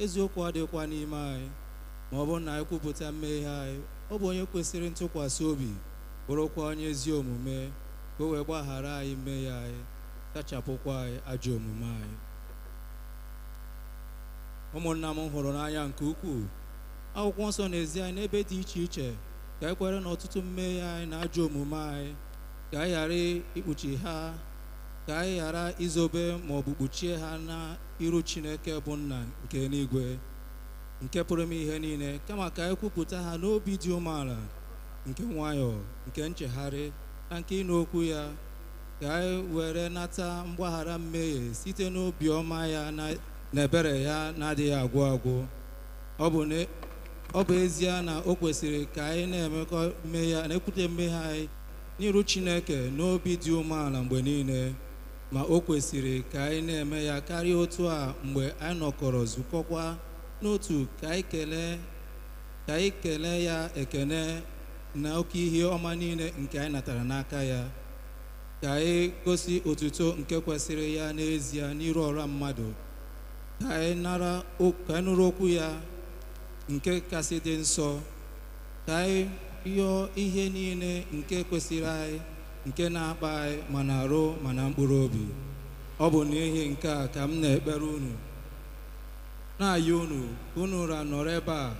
eziokwu adịghịkwa n'ime anyị ma ọ bụrụ na anyị kwupụta mmehie anyị ọ bụ onye kwesịrị ntụkwasị obi bụrụkwa onye ezi omume ka o wee gbaghara anyị mmehie anyị sachapụkwa anyị ajọ omume anyị ụmụnna m hụrụ n'anya nke ukwuu akwụkwọ nsọ n'ezi anyị n'ebe dị iche iche ka anyị e kwere na ọtụtụ mmehie anyị na ajọ omume anyị ka anyị ghara ikpuchi ha ka anyị ghara izobe ma bụ kpuchie ha iru chineke bụ nna nke n'igwe nke pụrụ m ihe niile kama ka anyị kwupụta ha n'obi dị umeala nke nwayọọ nke nchegharị na nke ịnụ okwu ya ka anyị were nata mgbaghara mmehie site n'obi ọma ya na ebere ya na-adịghị agwụ agwụ ọ bụ ezie na o kwesịrị ka anyị na-emekọ mmehie na-ekwute mmehie anyị n'iru chineke n'obi dị umeala mgbe niile ma o kwesịrị ka anyị na-eme ya karịa otu a mgbe anyị nọkọrọ zukọkwa n'otu ka anyị kelee ya ekene na oke ihe ọma niile nke anyị natara n'aka ya ka anyị gosi otuto nke kwesịrị ya n'ezie n'iru ọra mmadụ ka anyị nụrụ okwu ya nke kasị dị nsọ ka anyị yọọ ihe niile nke kwesịrị anyị nke na-akpa anyị ma na arụ ma na mkpụrụ obi ọ bụ n'ihi nke a ka m na-ekpere unu na-ayị unu unu ra nọrọ ebe a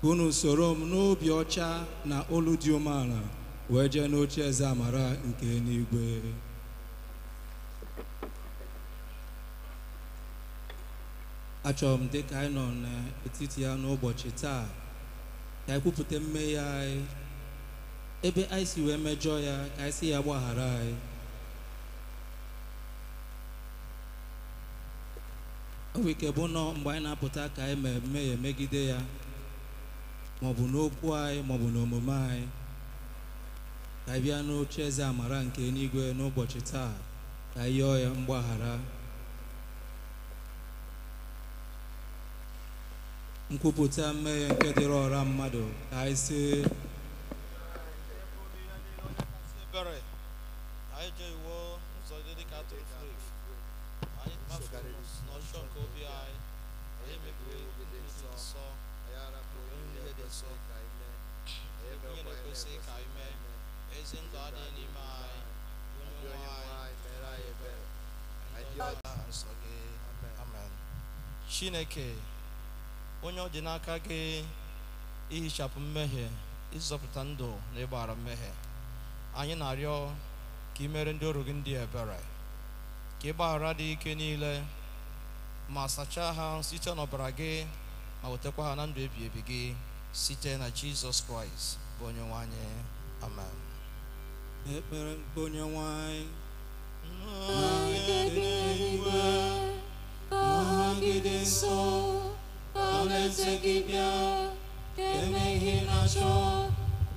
ka unu soro m n'obi ọcha na olu dị umeala wee jee n'oche eze amara nke n'igwe. achọrọ m dịka anyị nọ n'etiti ya n'ụbọchị taa ka anyị kwupụta mmehie anyị ebe anyị si wee mejọ ya ka anyị si ya gbaghara anyị ọ bụ nọ mgbe anyị na-apụta ka anyị mmehie megide ya maọbụ n'okwu anyị maọbụ n'omume anyị ka anyị bịa n'oche eze amara nke eluigwe n'ụbọchị taa ka anyị yọọ ya mgbaghara nkwupụta mmehie nke dịrị ọra mmadụ ka anyị si ebere anyị je iwo ụzọ furu efu anyị kpafuru n'ọjọọ nke obi anyị anyị mebiri ndị dị nsọ niile dị nsọ ihe na-ekwesịghị ka anyị mee ezi ndụ adịghị n'ime anyị onye nwe chineke onye ọ dị n'aka gị ihichapụ mmehie ịzọpụta ndụ na ịgbara mmehie anyị na-arịọ ka ị mere ndị ọrụ gị ndị ebere ka ị gbaghara dị ike niile ma sachaa ha site n'ọbara gị ma wetakwa ha na ndụ ebi ebi gị site na jizọs kraịst bụ onye nwanyị. amen ekpere nke onye nwe anyị nọgide nso ka alaeze gị bịa ka emeghị na-achọ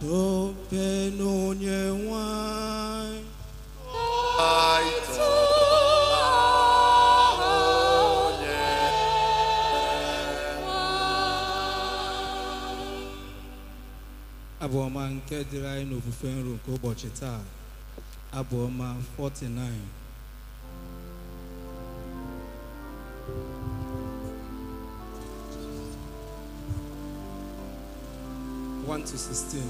tope n'onye nwanyị abụ ọma nke dịrị anyị n'ofufe nro nke ụbọchị taa abụ ọma 49 to sustain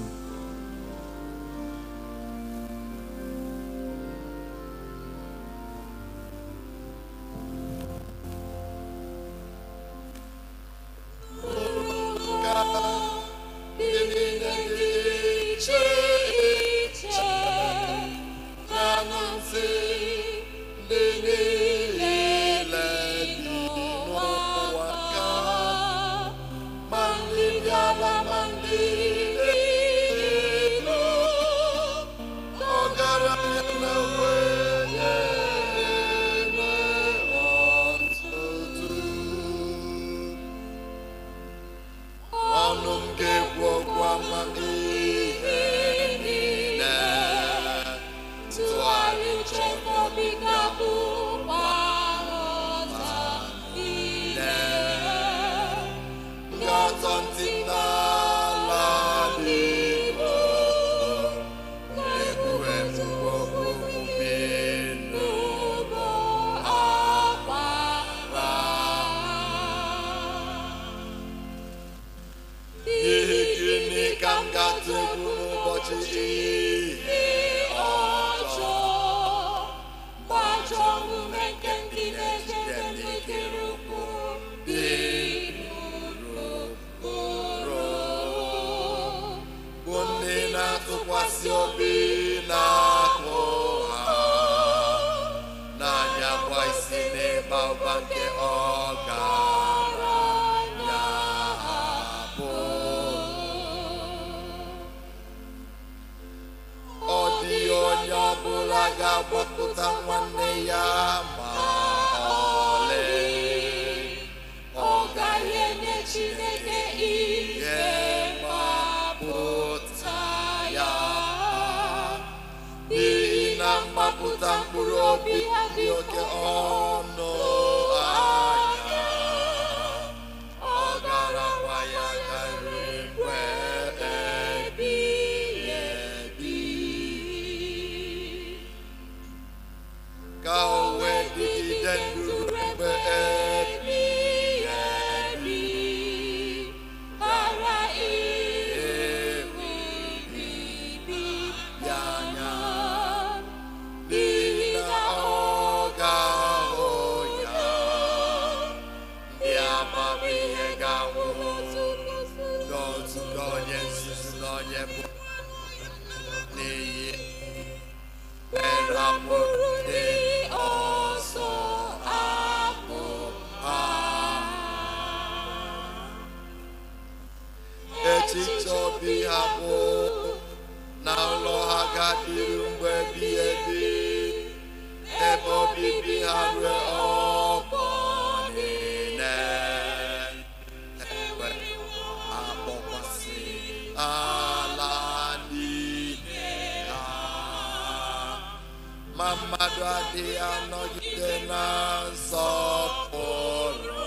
Kau wedi dan Mama do adi anogide na soporo.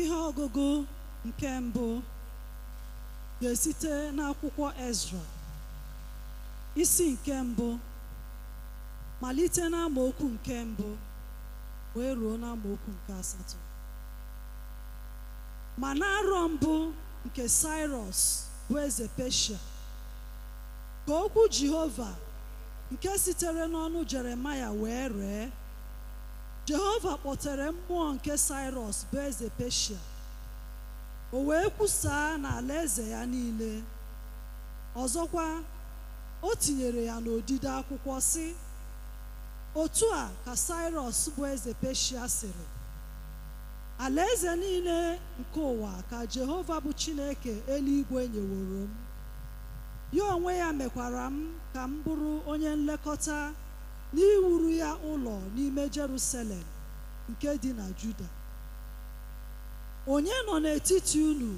ihe ọgụgụ nke mbụ ga-esite n'akwụkwọ Ezra isi nke mbụ malite okwu nke mbụ wee ruo n'amaokwu nke asatọ ma na arọ mbụ nke sirus bụ eze Peshia ka okwu Jehova nke sitere n'ọnụ Jeremaya wee ree jehova kpọtere mmụọ nke saịros bụ eze peshia o wee kwusaa n'ala eze ya niile ọzọkwa o tinyere ya n'odide akwụkwọ sị otu a ka saịros bụ eze peshia sịrị alaeze niile nke ụwa ka jehova bụ chineke eluigwe nyeworo m ya onwe ya mekwara m ka m bụrụ onye nlekọta n'iwuru ya ụlọ n'ime Jerusalem nke dị na Juda onye nọ n'etiti unu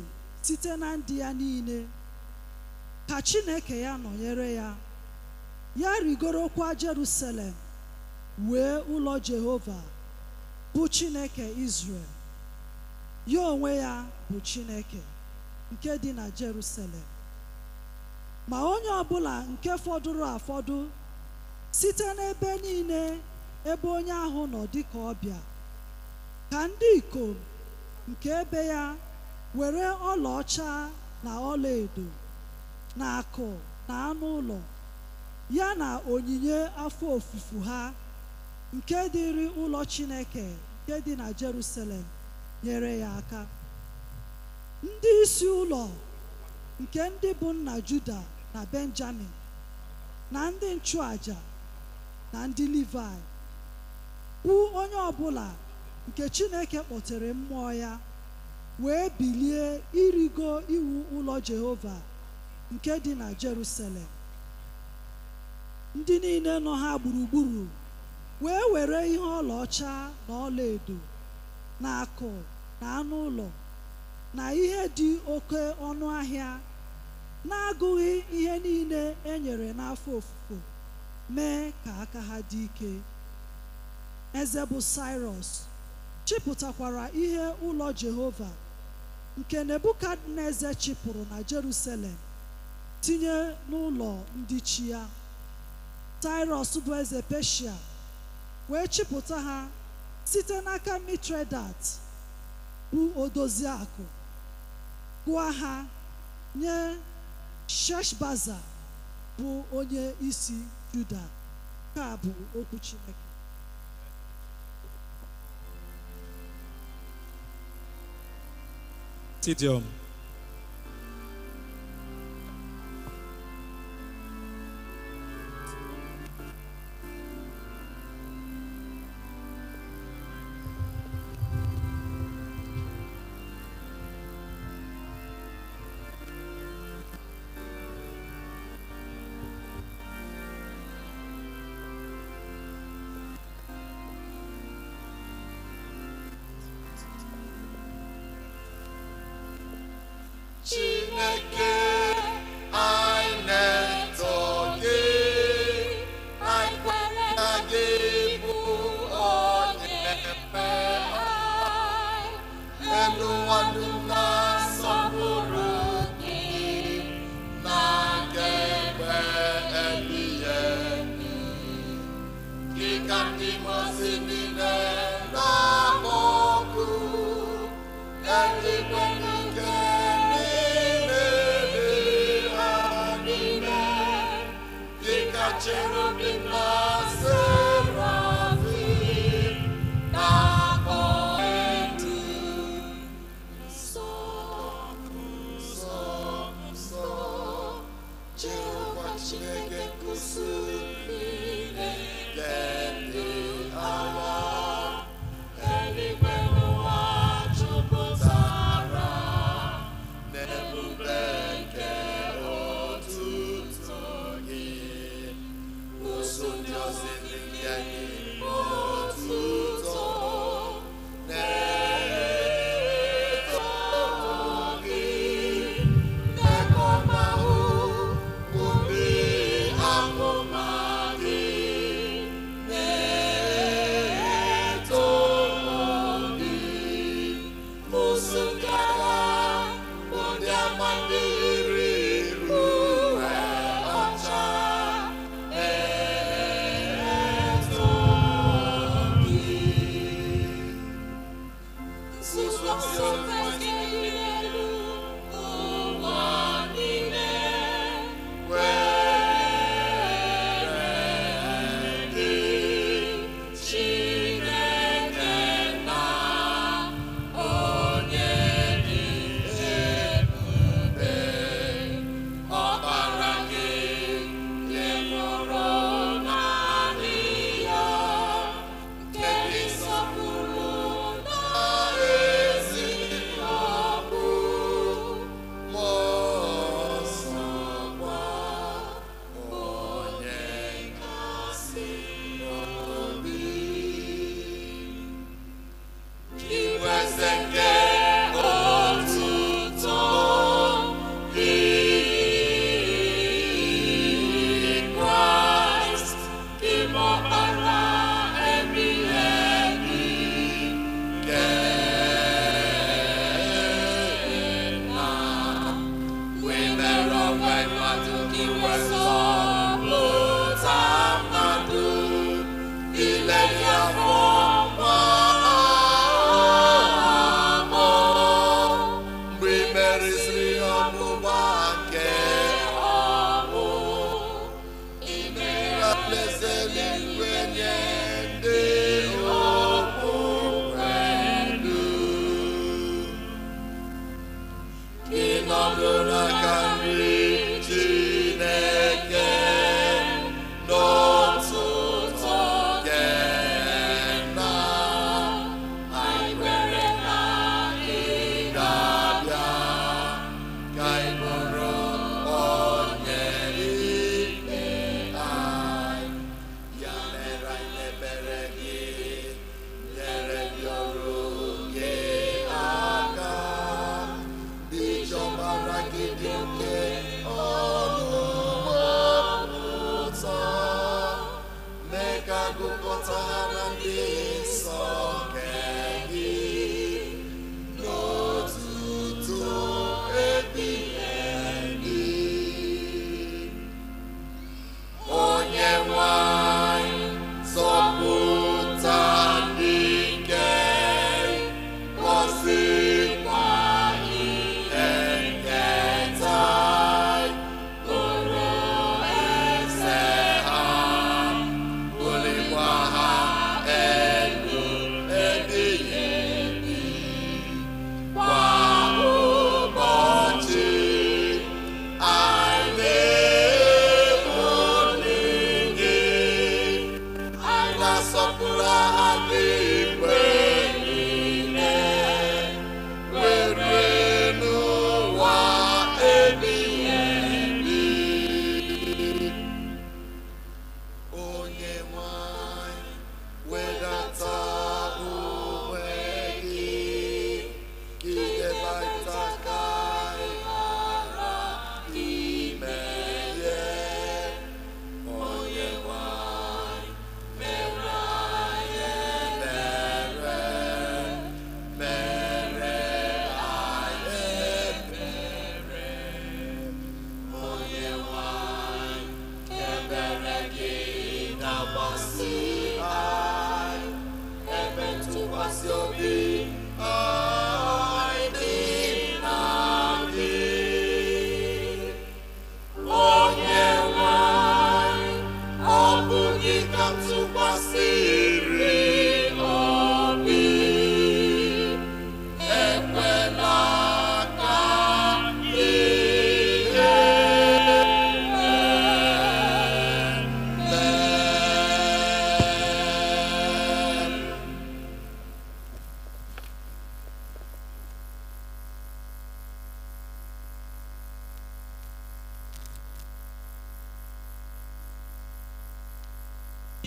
site na ndị ya niile ka Chineke ya nọnyere ya ya rigorokwa Jerusalem wee ụlọ Jehova bụ Chineke Izrel ya onwe ya bụ Chineke nke dị na Jerusalem ma onye ọbụla nke fọdụrụ afọdụ site n'ebe niile ebe onye ahụ nọ dị dịka ọbịa ka ndị ikom nke ebe ya were ọlaọcha na ọlaedo na akụ na anụ ụlọ ya na onyinye afọ ofufu ha nke dịrị ụlọ Chineke nke dị na Jerusalem nyere ya aka ndị isi ụlọ nke ndị bụ nna Juda na Benjamin na ndị nchụàja na ndị Livaị bụ onye ọbụla nke Chineke kpọtere mmụọ ya wee bilie irigo iwu ụlọ Jehova nke dị na Jerusalem ndị niile nọ ha gburugburu wee were ihe ọlaọcha na ọlaedo na akụ na anụ ụlọ na ihe dị oke ọnụ ahịa na-agụghị ihe niile e n'afọ ofufo mee ka aka ha dị ike eze bụ Cyrus chịpụtakwara ihe ụlọ Jehova nke Nebukadneza chịpụrụ na Jerusalem tinye n'ụlọ ndị chi ya saịros bụ eze Peshia wee chịpụta ha site n'aka Mitredat bụ odozi akụ gụọ ha nye Sheshbaza bụ onye isi Juda ka a bụ okwu Chineke Tidium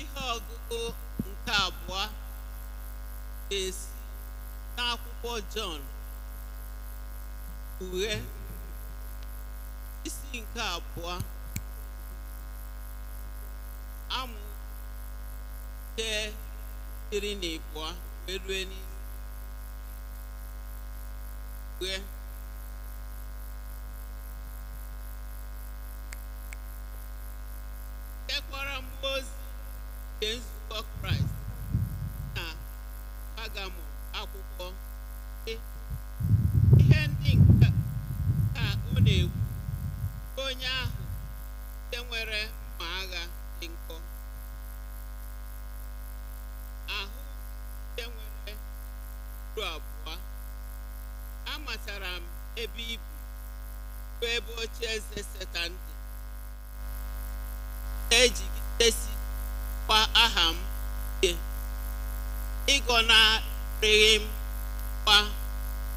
ihe ọgụgụ nke abụọ ga-esi n'akwụkwọ Jọn uwe isi nke abụọ amụ nke iri na abụọ wee nke nzukọ kraịst na pagamọ akwụkwọ e, ihe ndị nke ka ọ na-ekwu onye ahụ nke nwere mma agha dị nkọ ahụ nke nwere uru abụọ amatara m ebe ibu bụ ebe oche eze setan dị na-ejigidesi kwa aha m ịgọnarịghị m kwa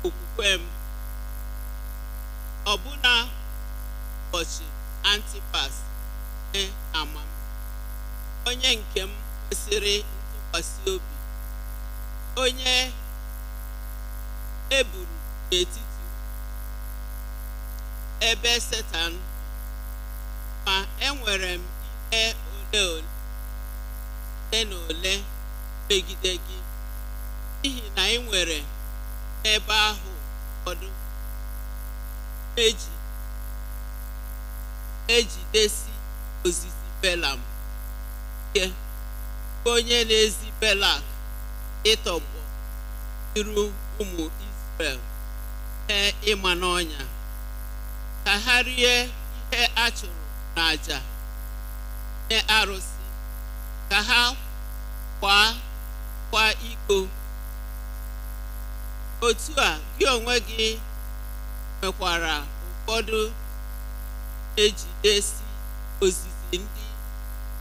okwukwe m ọbụna ụbọchị antipas e ama m onye nke m kwesịrị ntụkwasị obi onye eburu n'etiti ebe setan ma enwere m ihe ole ole ole na ole megide gị n'ihi na ị nwere ebe ahụ ụfọdụ eji ejidesi ozizi belam ike onye na-ezi belak ịtọgbọ iru ụmụ Izrel ihe ịma n'ọnya ka ha rie ihe a chụrụ n'àjà nye arụsị ka ha kwaa kwa iko otu a gị onwe gị nwekwara ụfọdụ ejidesi ozizi ndị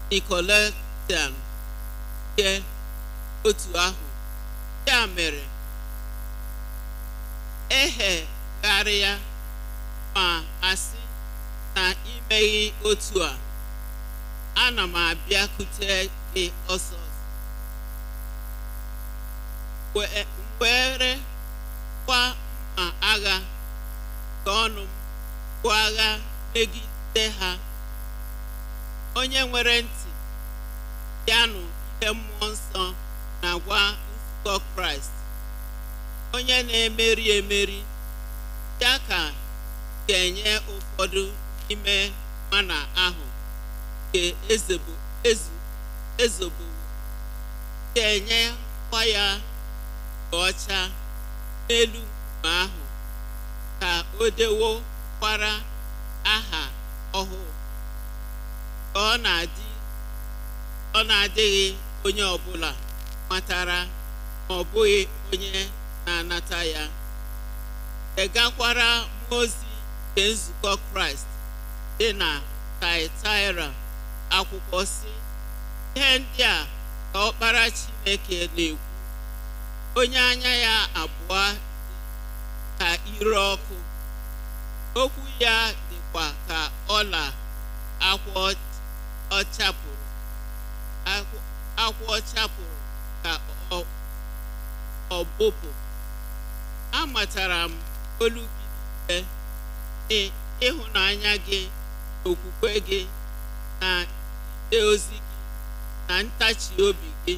nikoletan nke otu ahụ ya mere ehegharịa ma asị na imeghị otu a ana m abịakwute gị ọsọ were kwa mma agha nke ọnụ m bụ agha megide ha onye nwere ntị yanụ ihe mmụọ nsọ na-agwa nzukọ kraịst onye na-emeri emeri ya ka ga-enye ụfọdụ ime mana ahụ nke ezogbo ga-enye kwa ya ọcha n'elu nkume ahụ ka o dewokwara aha ọhụụ ka ọ na adịghị onye ọbụla matara ma ọ bụghị onye na-anata ya degakwara mmụọ ozi nke nzukọ kraịst dị na taịtaịra akwụkwọ si ihe ndị a ka ọkpara chineke na-ekwu onye anya ya abụọ ka ire ọkụ okwu ya dịkwa ka ọla akwa chapuru ka ọbụpụ amatara m olu gị ịhụnanya gị okwukwe gị na ide ozi gị na ntachi obi gị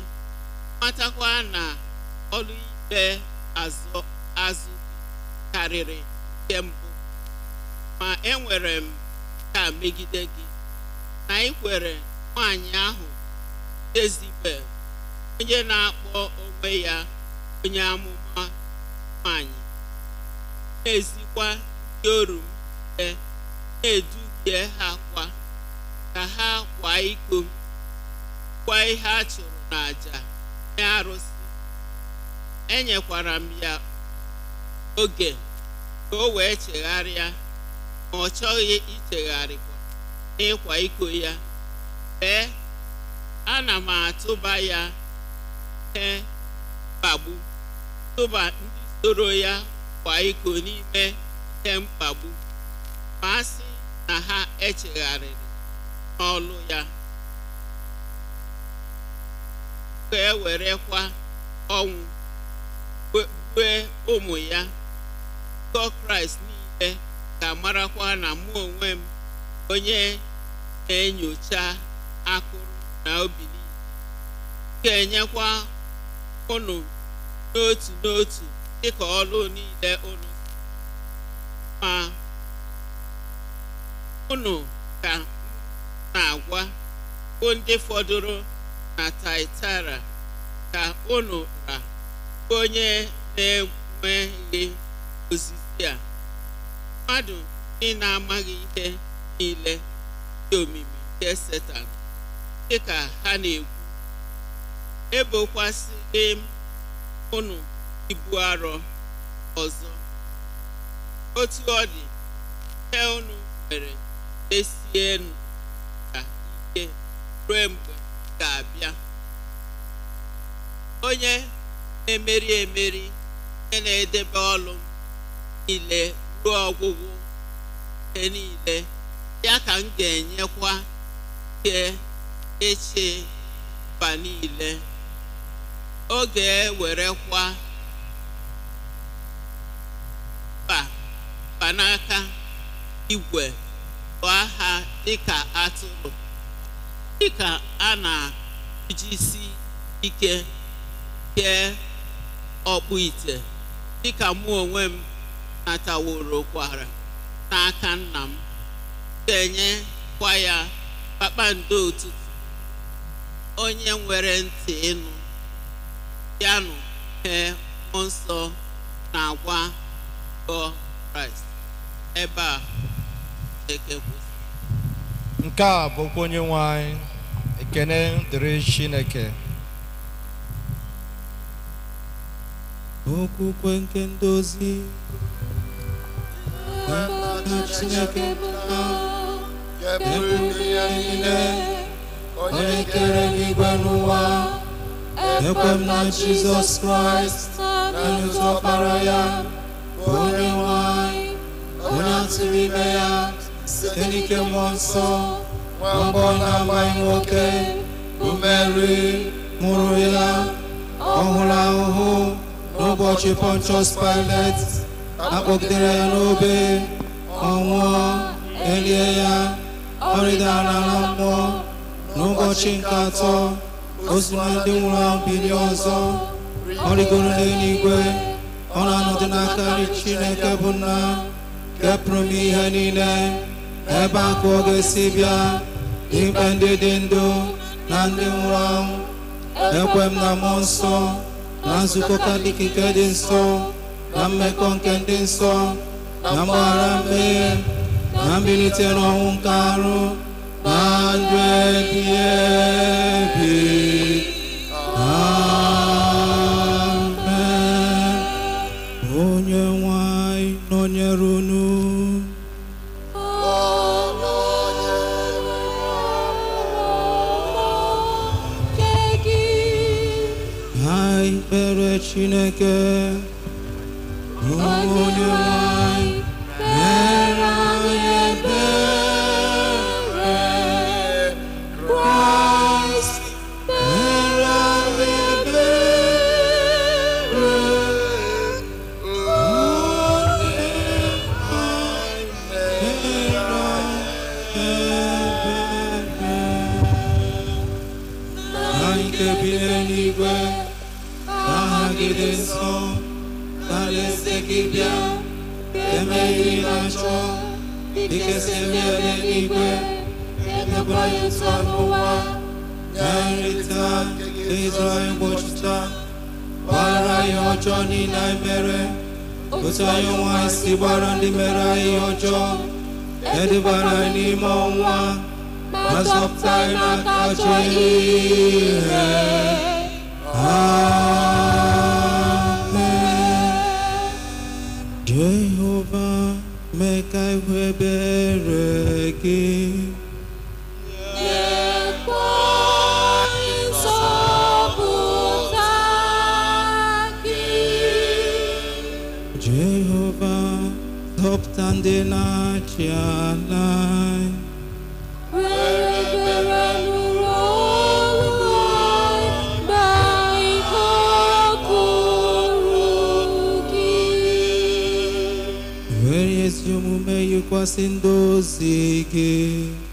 matakwa na ọlụikpe azụ azụ karịrị nke mbụ ma enwere m ka megide gị na ị kwere nwaanyị ahụ Jezibel onye na-akpọ onwe ya onye amụma nwaanyị na-ezikwa ndị oru m e na-eduhie ha kwa ka ha kwa iko kwa ihe a chụrụ n'àjà nye arụsị enyekwara m ya oge ka o wee chegharịa ma ọ chọghị ichegharịkwa n'ịkwa iko ya ee ana m atụba ya ee mkpagbu tụba ndị soro ya kwa iko n'ime ihe mkpagbu ma a sị na ha echegharịrị n'ọlụ ya ka e werekwa ọnwụ kpee ụmụ ya ụkọ kraịst niile ga marakwa na mụ onwe m onye na-enyocha akụrụ na obi niile ga-enyekwa ụnụ n'otu n'otu dịka ọlụ niile ụnụ ma ụnụ ka na-agwa bụ ndị fọdụrụ na taitara ka ụnụ ra onye na-enweghị ozizi a mmadụ ndị na-amaghị ihe niile dị omimi nke Setan dị ka ha na egwu ebokwasịghị m ụnụ ibu arọ ọzọ otu ọ dị ihe ụnụ nwere esienu ka ike ruo mgbe ga-abịa onye na-emeri emeri onye na-edebe ọlụ niile ruo ọgwụgwụ ihe niile ya ka m ga-enyekwa ike eche mba niile oge ewerekwa mba n'aka igwe bụ aha dịka atụrụ dịka a na-ejisi ike kee ọkpụ ite dịka mụ onwe m nataworo kwara n'aka nna m ga kwa ya kpakpando ụtụtụ onye nwere ntị ịnụ yanụ hee mmụọ nsọ na-agwa gọ kraịst ebe a nke a bụkwa onye nwe anyị ekene dịrị chineke okwukwe nke ndozi Chineke pụta ekwughị ya niile onye kere n'igwe n'ụwa ekwe m na Jizọs Kraịst naanị ọkpara ya bụ onye nwanyị onye atụrụ ime ya site n'ike mmụọ nsọ nwambọ na-amaghị nwoke bụ Meri mụrụ ya ọ hụrụ ahụhụ n'ụbọchị Pontius Pilate akpọgidere ya n'obe ọ nwụọ elie ya ọrịdara rịdara na mmụọ n'ụbọchị nke atọ o ndị nwụrụ anwụ ọzọ ọrịgoro n'eluigwe ọ na-anọdụ n'aka nri Chineke bụ nna kepụrụ m ihe niile ebe akụ ọ ga-esi bịa ikpe ndị dị ndụ na ndị nwụrụ anwụ ekwe m na mmụọ nsọ na nzukọ dịka nke dị nsọ na mmekọ nke ndị nsọ na mgbaghara mmehie na mbilite n'ọnwụ nke arụ na ndụ ebi ebi amen onye nwanyị nọnyere unu Chineke, onye bilanțul, Adică semnele libe, Это мое слово, Gaelita, Israel Bochita, Parayo Johnny Naimere, Usayo Wasi Barandi Merayo John, Edibarani Mawa, Masopta Nakacho Ihe. Amen. Jehovah. Make I wear again. Jehovah, top tandina chiana. kwasin dosike